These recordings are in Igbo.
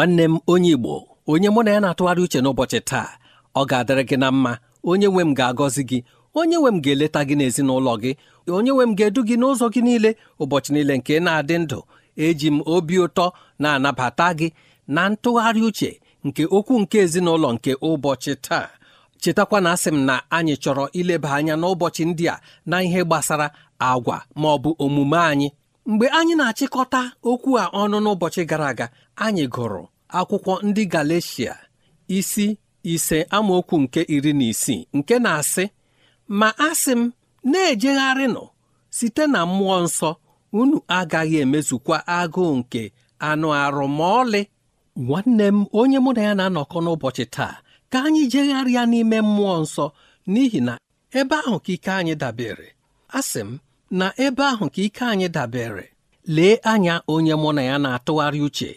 nwanne m onye Igbo onye mụ na ya na-atụgharị uche n'ụbọchị taa ọ ga-adịrị gị na mma onye nwe m ga-agọzi gị onye nwe m ga-eleta gị n'ezinụlọ gị onye nwe m ga-edu gị n'ụzọ gị niile ụbọchị niile nke na-adị ndụ eji m obi ụtọ na-anabata gị na ntụgharị uche nke okwu nke ezinụlọ nke ụbọchị taa chetakwa na asị m na anyị chọrọ ileba anya n'ụbọchị ndị a na ihe gbasara agwa ma ọ bụ omume anyị mgbe anyị na-achịkọta okwu a ọnụ n'ụbọchị gara aga anyị gụrụ akwụkwọ ndị Galeshia isi ise amaokwu nke iri na isii nke na-asị ma asị m na ejegharị nọ site na mmụọ nsọ unu agaghị emezukwa agụụ nke anụ arụ ma ọlị nwanne m onye mụ na ya na-anọkọ n'ụbọchị taa ka anyị jegharịa n'ime mmụọ nsọ n'ihi na ebe ahụ ka ike anyị dabere asị m na ebe ahụ ka ike anyị dabere lee anya onye mụ na ya na-atụgharị uche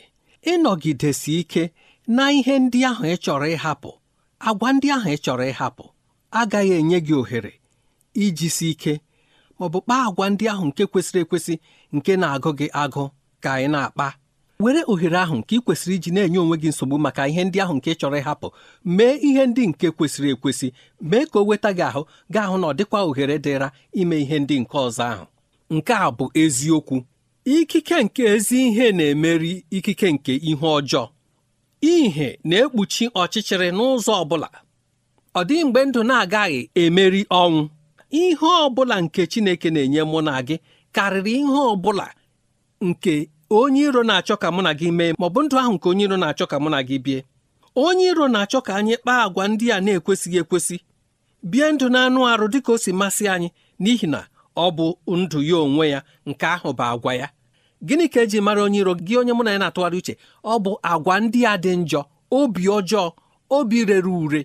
ịnọgidesi ike na ihe ndị ahụ ị chọrọ ịhapụ agwa ndị ahụ ị chọrọ ịhapụ agaghị enye gị ohere iji si ike ma ọ kpaa agwa ndị ahụ nke kwesịrị ekwesị nke na-agụ gị agụ ka ị na-akpa were ohere ahụ nke ị kwesịrị iji na-enye onwe gị nsogbu maka ihe ndị ahụ nke ị chọrọ ịhapụ mee ihe ndị nke kwesịrị ekwesị mee ka o weta gị ahụ gaa ahụ na ọ dịkwa ohere dịra ime ihe ndị nke ọzọ ahụ nke a bụ eziokwu ikike nke ezi ihe na-emeri ikike nke ihe ọjọọ ihe na-ekpuchi ọchịchịrị n'ụzọ ọbụla ọ dịghị mgbe ndụ na-agaghị emeri ọnwụ ihe ọbụla nke Chineke na-enye mụ na gị karịrị ihe ọbụla nke onye iro na-achọ ka mụ na gị mee ma ọ bụ ndụ ahụ nke onye iro na-achọ ka mụ na gị bie onye iro na-achọ ka anyị kpaa agwa ndị a na-ekwesịghị ekwesị bie ndụ na-anụ arụ dị ka o si masị anyị n'ihi na ọ bụ ndụ ya onwe ya nke ahụ bụ agwa ya gịnị ka eji mara onye iro gị onye mụ na ya na-atụgharị uche ọ bụ agwa ndị a dị njọ obi ọjọọ obi rere ure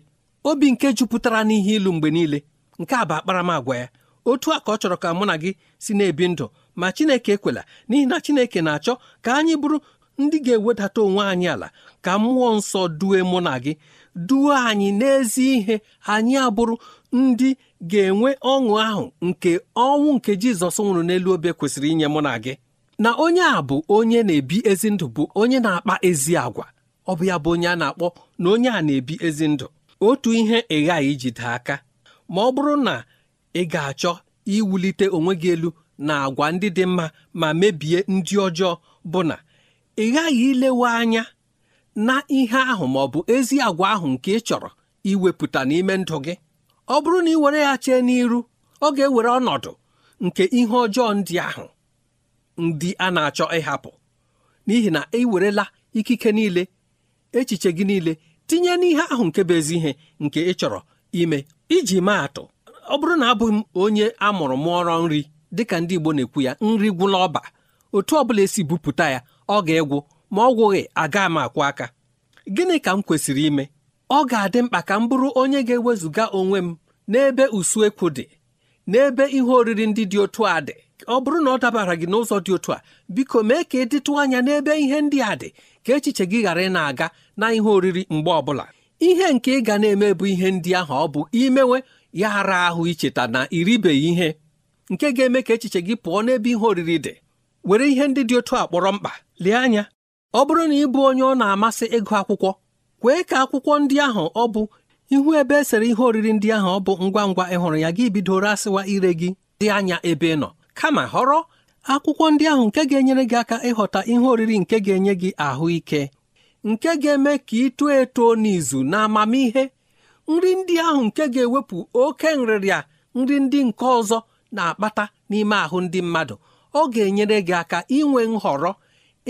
obi nke jupụtara n'ihe ilu mgbe niile nke a bụ akparamagwa ya otu a ka ọ chọrọ ka mụ na gị si na-ebi ndụ ma Chineke ekwela n'ihi na Chineke na-achọ ka anyị bụrụ ndị ga-ewedata onwe anyị ala ka mmụọ nsọ due mụ na gị duo anyị n'ezi ihe anyị abụrụ ndị ga-enwe ọṅụ ahụ nke ọnwụ nke Jizọs nwụrụ n'elu obe kwesịrị inye mụ na gị na onye a bụ onye na-ebi ezi ndụ bụ onye na-akpa ezi agwa ọ bụ ya bụ onye a na-akpọ na onye a na-ebi ezi ndụ otu ihe ị ghaghị ijide aka ma ọ bụrụ na ị ga-achọ iwulite onwe gị elu na agwa ndị dị mma ma mebie ndị ọjọọ bụ na ị ghaghị ilewe anya na ihe ahụ ma ọ bụ ezi agwa ahụ nke ị chọrọ iwepụta n'ime ndụ gị ọ bụrụ na ị were ya chee n'iru ọ ga-ewere ọnọdụ nke ihe ọjọọ ndị ahụ ndị a na-achọ ịhapụ n'ihi na ị werela ikike niile echiche gị niile tinye n'ihe ahụ nke bụ ezi ihe nke ị chọrọ ime iji maa atụ ọ bụrụ na abụghị m onye a mụrụ mụọrọ nri dịka ndị Igbo na-ekwu ya nri gwụla ọba otu ọbụla esi bupụta ya ọ ga-egwu ma ọ gwụghị aga m akwụ aka gịnị ka m kwesịrị ime ọ ga-adị mkpa ka m bụrụ onye ga-ewezụga onwe m n'ebe usuekwu dị n'ebe ihe oriri ndị dị otu a dị ọ bụrụ na ọ dabara gị n'ụzọ dị otu a biko mee ka ị e dịtụ anya n'ebe ihe ndị a dị ka echiche gị ghara ị na-aga na ihe oriri mgbe ọbụla ihe nke ị ga na-eme bụ ihe ndị ahụ ọ bụ imewe ya ara ahụ icheta na iribeghị ihe nke ga-eme ka echiche gị pụọ n'ebe ihe oriri dị were ihe ndị dị otu a kpọrọ mkpa lee anya ọ bụrụ na ị bụ onye ọ na-amasị ịgụ akwụkwọ kwee ka akwụkwọ ndị ahụ ọ bụ ihu ebe esere ihe oriri ndị ahụ ọ bụ ngwa ngwa ịhụrụ ya gị bidoro asịwa ire gị dị anya ebe ị nọ kama họrọ akwụkwọ ndị ahụ nke ga-enyere gị aka ịghọta ihe oriri nke ga-enye gị ahụike nke ga-eme ka ị too eto n'izu na amamihe nri ndị ahụ nke ga-ewepụ oke nrịrịa nri ndị nke ọzọ na-akpata n'ime ahụ ndị mmadụ ọ ga-enyere gị aka inwe nhọrọ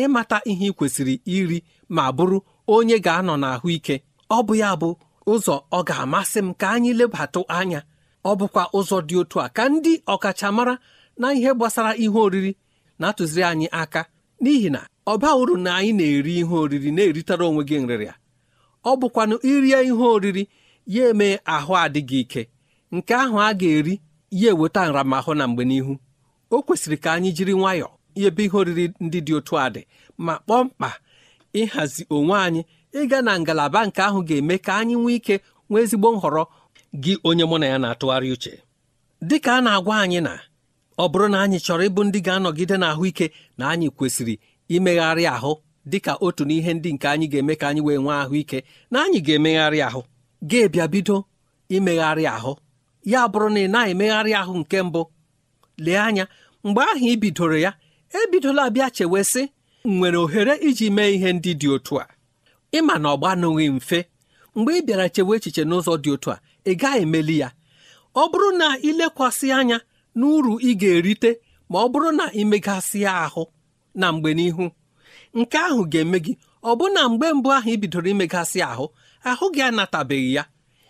ịmata ihe ị kwesịrị iri ma bụrụ onye ga-anọ n'ahụike ọ bụ ya bụ ụzọ ọ ga-amasị m ka anyị lebatụ anya ọ bụkwa ụzọ dị otu a ka ndị ọkachamara na ihe gbasara ihe oriri na-atụziri anyị aka n'ihi na ọ uru na anyị na-eri ihe oriri na-eritara onwe gị nrịrịa ọ bụkwanụ irie ihe oriri ya eme ahụ adịghị ike nke ahụ a ga-eri ya eweta nramahụ na mgbe n'ihu o kwesịrị ka anyị jiri nwayọọ ebe ihe oriri ndị dị otu a dị ma kpọọ mkpa ịhazi onwe anyị ịga na ngalaba nke ahụ ga-eme ka anyị nwee ike nwee ezigbo nhọrọ gị onye mụ na ya na-atụgharị uche dị ka a na-agwa anyị na ọ bụrụ na anyị chọrọ ịbụ ndị ga-anọgide n'ahụike na anyị kwesịrị imegharị ahụ dị ka otu n'ihe ndị nke anyị ga-eme ka anyị wee nwee ahụike na anyị ga-emegharị ahụ ga-ebịa bido imegharị ahụ ya bụrụ na ị na-emegharị ahụ nke mbụ lee anya mgbe ahụ ị bidoro ya ebidola bịa chewe sị nwere ohere iji mee ihe ndị dị otu a ịma na ọ gbanụghị mfe mgbe ị bịara chewe echiche n'ụzọ dị otu a ị gaghị emeli ya ọ bụrụ na ịlekwasị anya na uru ị ga-erite ma ọ bụrụ na ịmegasịa ahụ na mgbe n'ihu nke ahụ ga-eme gị ọ bụ na mgbe mbụ ahụ ị bidoro imegasị ahụ ahụ gị anatabeghị ya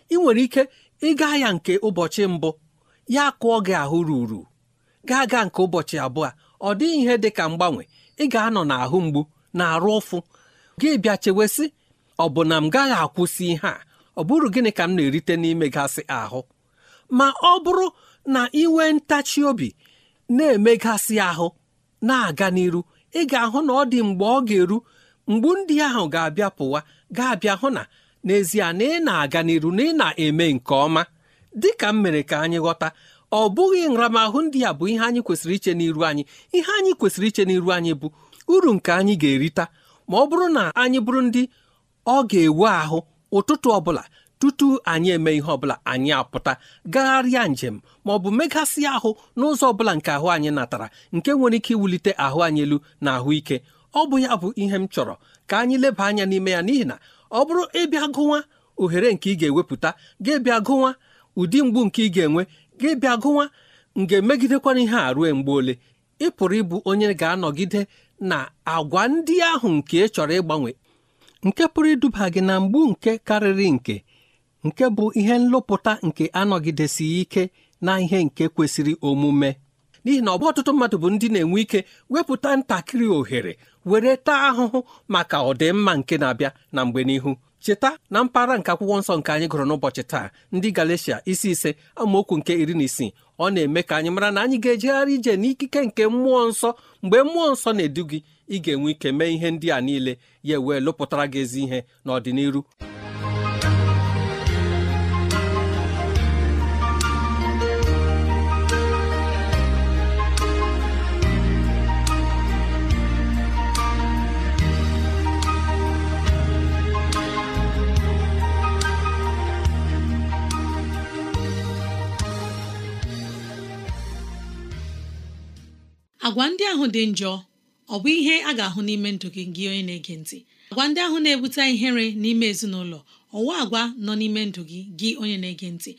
ị nwere ike Ị gaa ya nke ụbọchị mbụ ya kụọ gị ahụ ruru gaa gaa nke ụbọchị abụọ ọ dịghị ihe dị ka mgbanwe ị ga-anọ n'ahụ mgbu na-arụ ụfụ gị bịa chewesị ọ bụ na m gaghị akwụsị ihe a ọ bụrụ gịnị ka m na-erite n'ime gasị ahụ ma ọ bụrụ na inwe ntachi obi na-emegasị ahụ na-aga n'iru ị ga-ahụ na ọ dị mgbe ọ ga-eru mgbu ndị ahụ ga-abịa pụwa ga-abịa hụ na n'ezie na ị na-aga n'iru na ị na-eme nke ọma dị ka m mere ka anyị ghọta ọ bụghị nramahụ ndị a bụ ihe anyị kwesịrị iche n'iru anyị ihe anyị kwesịrị iche n'iru anyị bụ uru nke anyị ga-erita ma ọ bụrụ na anyị bụrụ ndị ọ ga ewu ahụ ụtụtụ ọbụla tutu anyị eme ihe ọbụla anyị apụta gagharịa njem ma ọ bụ megasị ahụ n'ụzọ ọbụla nke ahụ anyị natara nke nwere ike iwulite ahụ anyị elu na ahụike ọ bụ ya bụ ihe m chọrọ ka anyị leba anya n'ime ya n'ihi na ọ bụrụ ịbịa gụwa ohere nke ị ga-ewepụta ga-ebịa gụwa ụdị mgbu nke ị ga-enwe ga-ebịa gụwa nga megidekwana ihe a rue mgbe ole ị pụrụ ịbụ onye ga-anọgide na agwa ndị ahụ nke ị chọrọ ịgbanwe nke pụrụ iduba gị na mgbu nke karịrị nke nke bụ ihe nlụpụta nke anọgidesighị ike na ihe nke kwesịrị omume n'ihi na ọ bụ ọtụtụ mmadụ bụ ndị na-enwe ike wepụta ntakịrị ohere were taa ahụhụ maka ọdịmma nke na-abịa na mgbe n'ihu cheta na mpaghara nke akwụkwọ nsọ nke anyị gụrụ n'ụbọchị taa ndị Galatia isi ise amaokwu nke iri na isii ọ na-eme ka anyị mara na anyị ga-ejegharị ije n'ikike nke mmụọ nsọ mgbe mmụọ nsọ na-edu gị ị ga-enwe ike mee ihe ndị a niile ya wee lụpụtara gị ezi ihe n'ọdịnihu agwa ndị ahụ dị njọ ọ bụ ihe a ga-ahụ n'ime ndụ gị gị onye na-ege ntị agwa ndị ahụ na-ebute ihere n'ime ezinụlọ ọwa agwa nọ n'ime ndụ gị gị onye na-ege ntị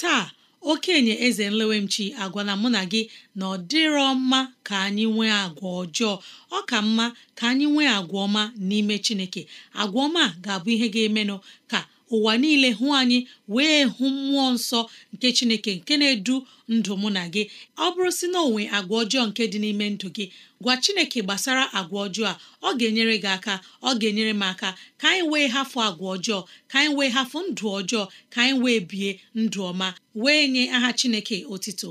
taa okenye eze nlewemchi agwa na mụ na gị na ọ dịrọ mma ka anyị nwee agwa ọjọọ ọ ka mma ka anyị nwee agwa ọma n'ime Chineke agwa ọma ga-abụ ihe ga-emenụ ka ụwa niile hụ anyị wee hụ mmụọ nsọ nke chineke nke na-edu ndụ mụ na gị ọ bụrụ si na onwe agwa ọjọọ nke dị n'ime ndụ gị gwa chineke gbasara agwa ọjọọ a ọ ga-enyere gị aka ọ ga-enyere m aka ka anyị wee hafụ agwa ọjọọ ka anyị wee hafụ ndụ ọjọọ ka anyị wee bie ndụ ọma wee nye aha chineke otito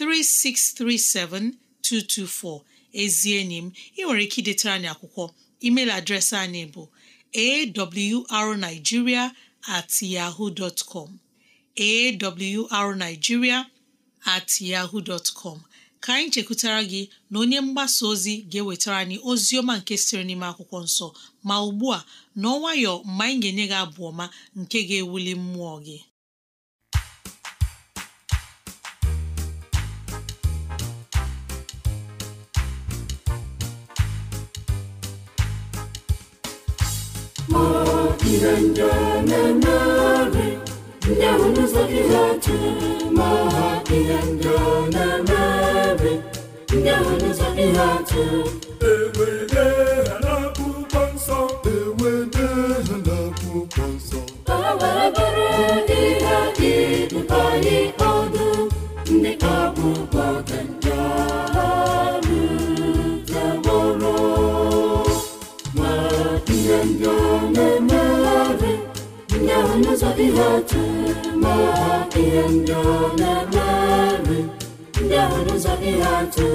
3637224 ezi enyi m ị nwere ike idetara anyị akwụkwọ email adreesị anyị bụ arigiria at at yahoo dot ka anyị chekwutara gị na onye mgbasa ozi ga-ewetara anyị ozi ọma nke sịrị n'ime akwụkwọ nsọ ma ugbu a n'ọnwayọ mgbe anyị ga-enye gị abụ ọma nke ga-ewuli mmụọ gị ma ihe ndị na-eme ndị ahụ n'ụzọ gị ha ma ihe ndị na-eme ndị ahụ n'ụzọ gị ha adịghị otu ma ihe ndị ọ na-eme ndị ahụ n'ụzọ ihe atụ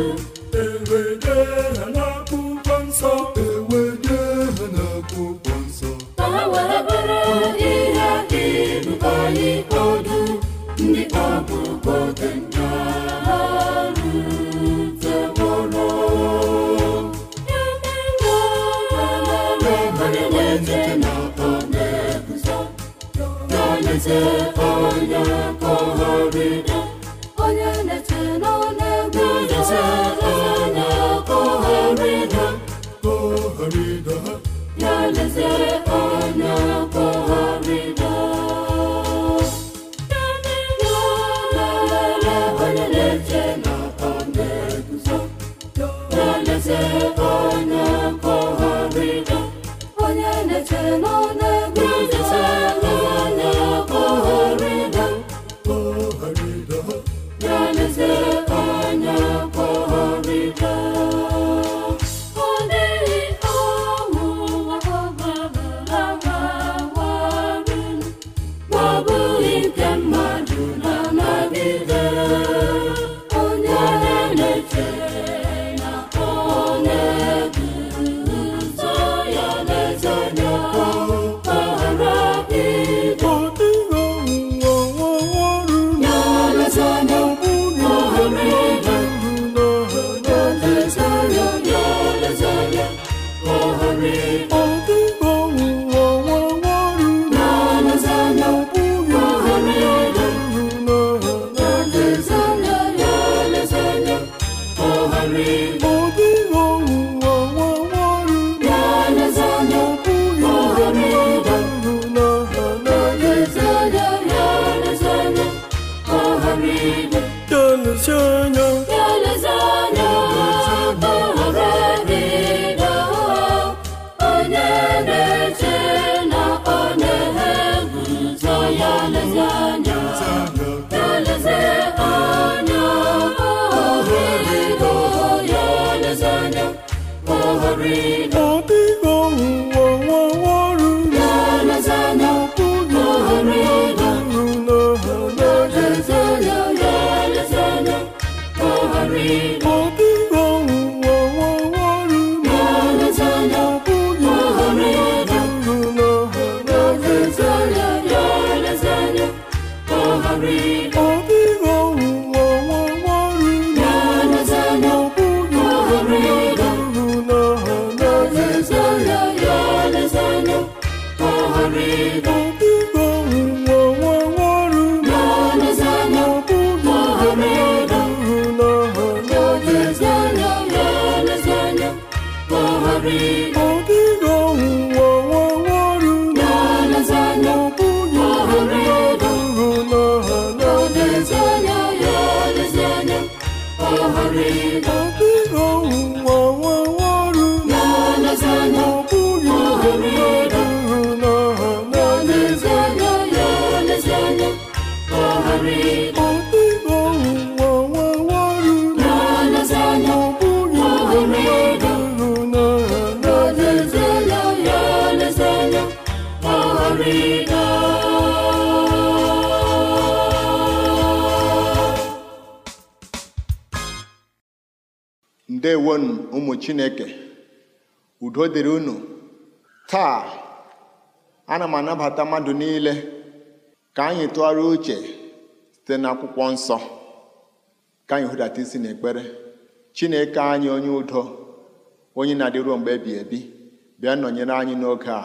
udo dịrị unu taa ana m anabata mmadụ niile ka anyị tụgharịa uche site n'akwụkwọ nsọ ka anyị hụdata isi n'ekpere chineke anyị onye udo onye na-adịruo mgbe ebi ebi bịa nọnyere anyị n'oge a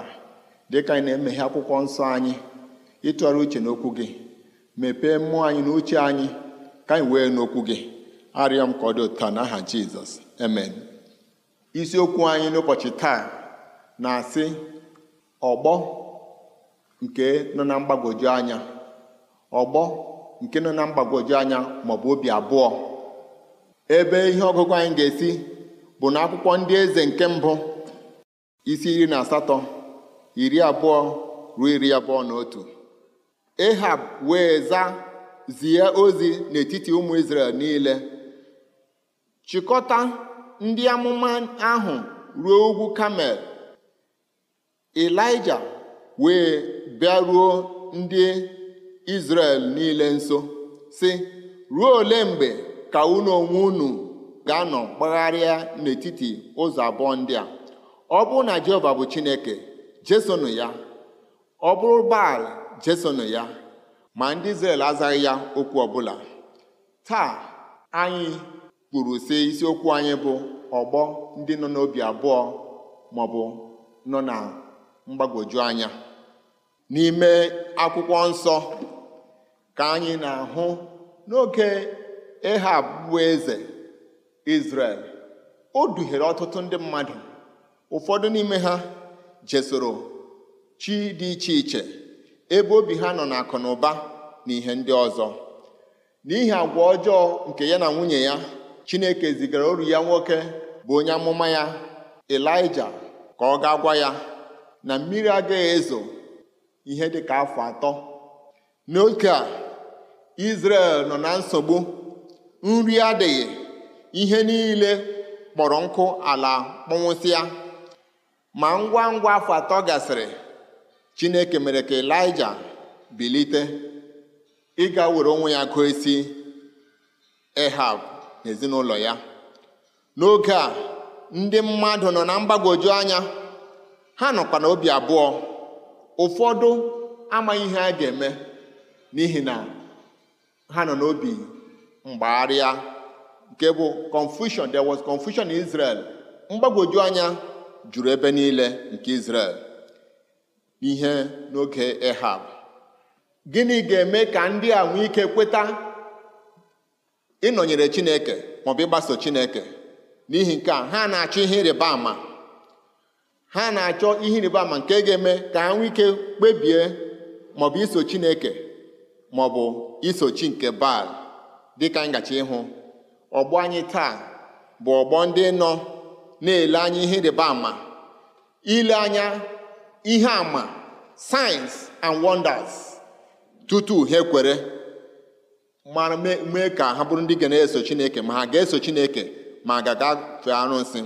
dịka anyị na-emeghe akwụkwọ nsọ anyị ịtụgharị uche n'okwu gị mepee mmụọ anyị na uche anyị ka anyị wee n'okwu gị arịọ m ka ọ dị ụtọ n'aha jizọs amen Isiokwu anyị n'ụbọchị taa na-asị ọgbọ nke nọ na mgbagwoju anya ọgbọ nke nọ na mgbagwoju anya maọbụ obi abụọ ebe ihe ọgụgụ anyị ga-esi bụ na akwụkwọ ndị eze nke mbụ isi iri na asatọ iri abụọ ruo iri abụọ na otu wee zaa zie ozi n'etiti ụmụ Izrel niile chịkọta ndị amụma ahụ ruo ugwu kamel elija wee bịaruo ndị izrel niile nso si ruo ole mgbe ka unu onwe unu ga-anọ kpagharịa n'etiti ụzọ abụọ ndị a ọ bụrụ na jehova bụ chineke jesonụ ya ọ bụrụ baal jesonụ ya ma ndị izrel azaghị ya okwu ọbụla taa anyị kwuru sị isiokwu anyị bụ ọgbọ ndị nọ n'obi abụọ ma ọ bụ nọ na mgbagwoju anya n'ime akwụkwọ nsọ ka anyị na-ahụ n'oge ịha bụ eze Izrel o duhiere ọtụtụ ndị mmadụ ụfọdụ n'ime ha jesoro chi dị iche iche ebe obi ha nọ n'akụ na ụba na ihe ndị ọzọ n'ihi agwa ọjọọ nke ya na nwunye ya chineke zigara oru ya nwoke bụ onye amụma ya elija ka ọ ga gwa ya na mmiri agaghị ezo ihe dị ka afọ atọ n'oge a Izrel nọ na nsogbu nri adịghị ihe niile kpọrọ nkụ ala kpọnwụsịa ma ngwa ngwa afọ atọ gasịrị Chineke mere ka Elija bilite ịga were onwe ya gụọ Ehab na ezinụlọ ya n'oge a ndị mmadụ nọ na mgbagwoju anya ha nọkwa na obi abụọ ụfọdụ amaghị ihe a ga-eme n'ihi na ha nọ n'obi mgbagharịa nke bụ confusion there was confusion in Israel mgbagwoju anya juru ebe niile nke Israel n'ihe n'oge Ehab gịnị ga-eme ka ndị a nwee ike kweta ịnọnyere chineke maọbụ ịgbaso chineke n'ihi nke a ha na-achọ ihe ịrịba ama ha na-achọ ihe ịrịba ama nke ga-eme ka ha nwee kpebie maọbụ iso chineke maọbụ iso chi nke baal dịka ngachi ịhụ ọgbọ anyị taa bụ ọgbọ ndị nọ na-ele anya ihe ịrịba ama ile anya ihe ama signs and wonders tutu ha ekwere mara mee ka ha bụrụ ndị ga na-eso chineke ma ha ga-eso chineke ma ga-agafe arụsị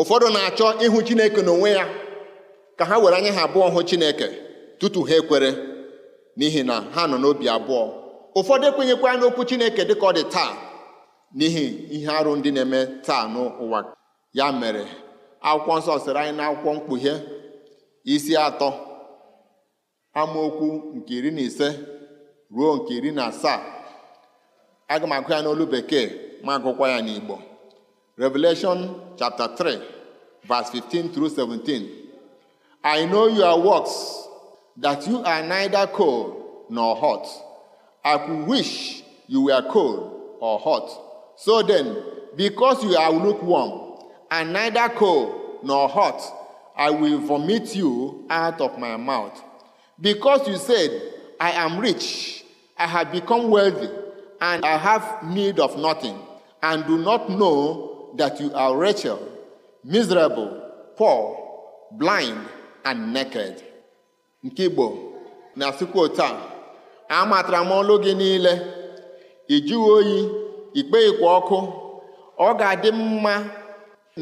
ụfọdụ na-achọ ịhụ chineke n'onwe ya ka ha were anya ha abụọ hụ chineke tutu ha ekwere n'ihi na ha nọ n'obi abụọ ụfọdụ ekwenyekwa n'okwu chineke dị ka ọ dị taa n'ihi ihe arụ ndị na-eme taa n'ụwa ya mere akwụkwọ nsọ sịrị anyị na akwụkwọ mkpughe isi atọ amaokwu nke iri na ise ruo nke iri na asaa aga m olubeke ya n'olu bekee ma agụkwa ya n'Igbo Revelation chapter 3 verse 15 through 17 I know your works that you are neither cold nor hot I could wish you were cold or hot so then because you are lukewarm and neither cold nor hot I will vomit you out of my mouth because you said I am rich I have become wealthy and I have need of nothing, and do not know that you are wretched, miserable, poor, blind, and naked. Nke Igbo na-asịkwa otu a amatara m ọlụ gị niile ị jụghị oyi ikpeghịkwa ọkụ ọ ga-adị mma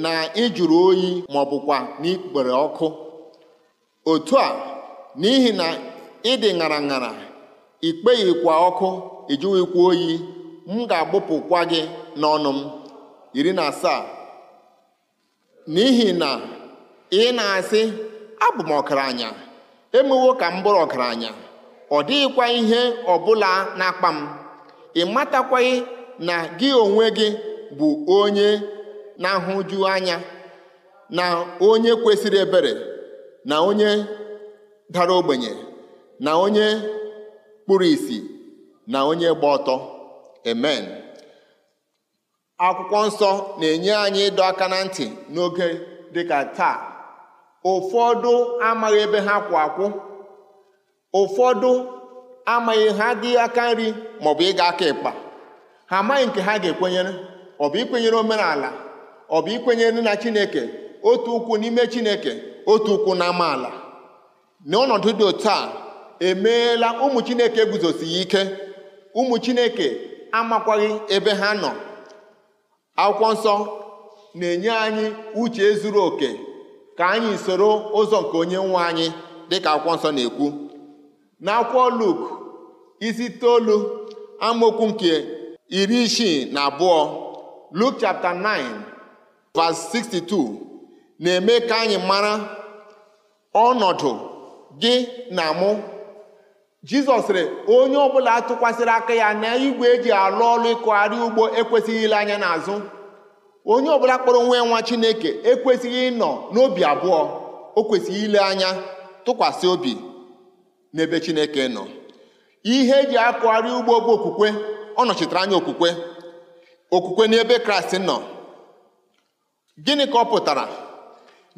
na ịjụrụ oyi ma ọ bụkwa n'ikpere ọkụ otu a n'ihi na ịdị ṅara ṅara ikpeghịkwa ọkụ ịjụghịkwa oyi m ga-agbụpụkwa gị n'ọnụ m iri na asaa n'ihi na ị na-asị abụ m anya, emewo ka m bụrụ ọkaranya ọ dịghịkwa ihe ọbụla n'akpa m ị matakwaghị na gị onwe gị bụ onye na-ahụju anya na onye kwesịrị ebere na onye dara ogbenye na onye kpuru ìsì na onye gba ọtọ amen akwụkwọ nsọ na-enye anyị ịdọ aka na ntị n'oge dịka taa ụfọdụ amaghị ebe ha kwụ akwụ ụfọdụ amaghị ha dị aka nri maọbụ ịga aka ịkpa ha amaghị nke ha ga-ekwenyere ọ bụ ikwenyere omenala ọ bụ ikwenyere na chineke otu ụkwụ n'ime chineke otu ụkwụ na amaala n'ọnọdụ dị otu a emeela ụmụ chineke ya ike ụmụ chineke amakwaghị ebe ha nọ akwụkwọ nsọ na-enye anyị uche zuru oke ka anyị soro ụzọ nke onye nwe anyị dịka akwụkwọ nsọ na-ekwu na akwụkwọ Luk isi itoolu amaokwu nke iri isii na abụọ Luk chapter 9 verse 62 na-eme ka anyị mara ọnọdụ gị na mụ jizọs sịrị onye ọbụla atụkwasịrị aka ya na igwe eji alụ ọlụ ịkụgharị ugbo ekwesịghị ile anya n'azụ onye ọbụla kpọrọ nwa nwa chineke ekwesịghị ịnọ n'obi abụọ o kwesịghị ile anya tụkwasị obi n'ebe chineke nọ ihe eji akụgharị ugbo bụ okwukwe ọ nọchitere anya okwukwe okwukwe n'ebe kraịst nọ gịnị ka ọ pụtara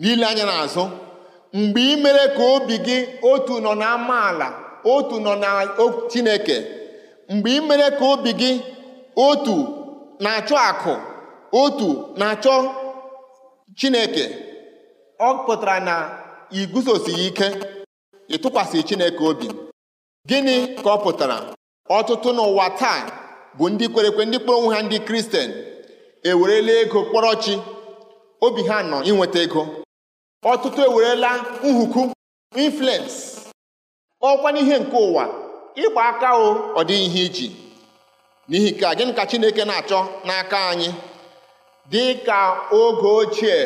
n'ile anya n'azụ mgbe ị mere ka obi gị otu nọ na amaala otu nọ na chineke mgbe ị mere ka obi gị otu na-achọ akụ otu na-achọ chineke ọ pụtara na ị guzosighị ike ịtụkwasị chineke obi gịnị ka ọ pụtara ọtụtụ n'ụwa taa bụ ndị kwerekwe ndị kpọrọ onwe ha ndị kristian ewerela ego kpọrọ chi obi ha nọ inweta ego ọtụtụ ewerela nhuku influence ọkwa n'ihe nke ụwa ịgba aka o ọ dịghị ihe iji n'ihi ka gịnị ka Chineke na-achọ n'aka anyị dị ka oge ochie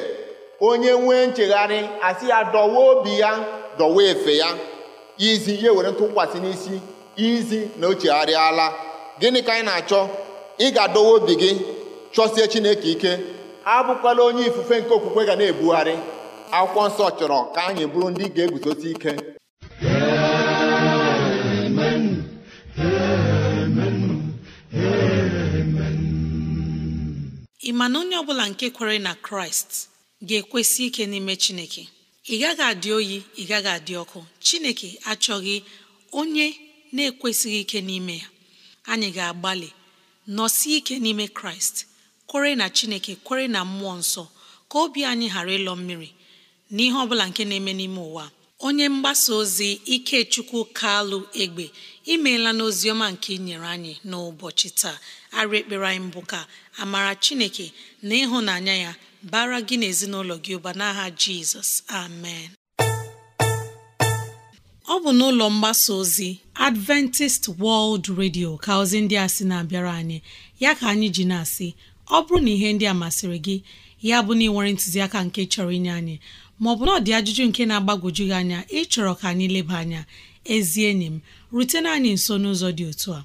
onye nwee nchegharị asị ya dọwa obi ya dọwa efe ya izi ya were ntụkwasị n'isi izi na o chegharịala gịnị ka anyị na-achọ ị ga-adọwa obi gị chọsie Chineke ike abụkwala onye ifufe nke okwukwe ga na-ebugharị akwụkwọ nsọ chọrọ ka anyị bụrụ ndị ga-eguzosi ike ị ma na onye ọ bụla nke kwere na kraịst ga-ekwesị ike n'ime chineke ị gaghị adị oyi ị gaghị adị ọkụ chineke achọghị onye na-ekwesịghị ike n'ime ya anyị ga-agbalị nọsi ike n'ime kraịst kwere na chineke kwere na mmụọ nsọ ka obi anyị ghara ịlọ mmiri n'ihe ọ bụla nke na-eme n'ime ụwa onye mgbasa ozi ikechukwu kalụ egbe imeela n'oziọma nke inyere anyị n'ụbọchị taa arị ekpere anyị mbụ ka amara chineke na ịhụnanya ya bara gị na ezinụlọ gị ụba n'aha jizọs amen ọ bụ n'ụlọ mgbasa ozi adventist world radio ka ozi ndị a sị na-abịara anyị ya ka anyị ji na-asị ọ bụrụ na ihe ndị a masịrị gị ya bụ na ị nwere ntụziaka nke chọrọ inye anyị maọbụ na ọ dị ajụjụ nke na-agbagwoju gị anya ịchọrọ ka anyị leba anya ezi enyi m rutena anyị nso n'ụzọ dị otu a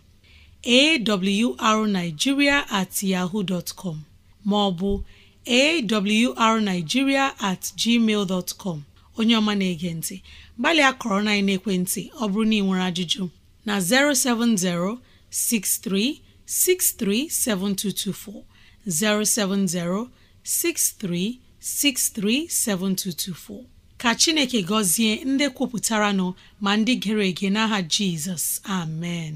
awrnigeria at yahoo dot com maọbụ awrnigeria at gmail dot com onye ọma na-ege ntị gbalịa kọrọ na ekwentị ọ bụrụ na ị nwere ajụjụ na 070 6363 7224 070 ka Chineke gọzie ndị kwupụtara nọ ma ndị gere ege n'aha Jizọs amen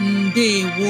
ndewo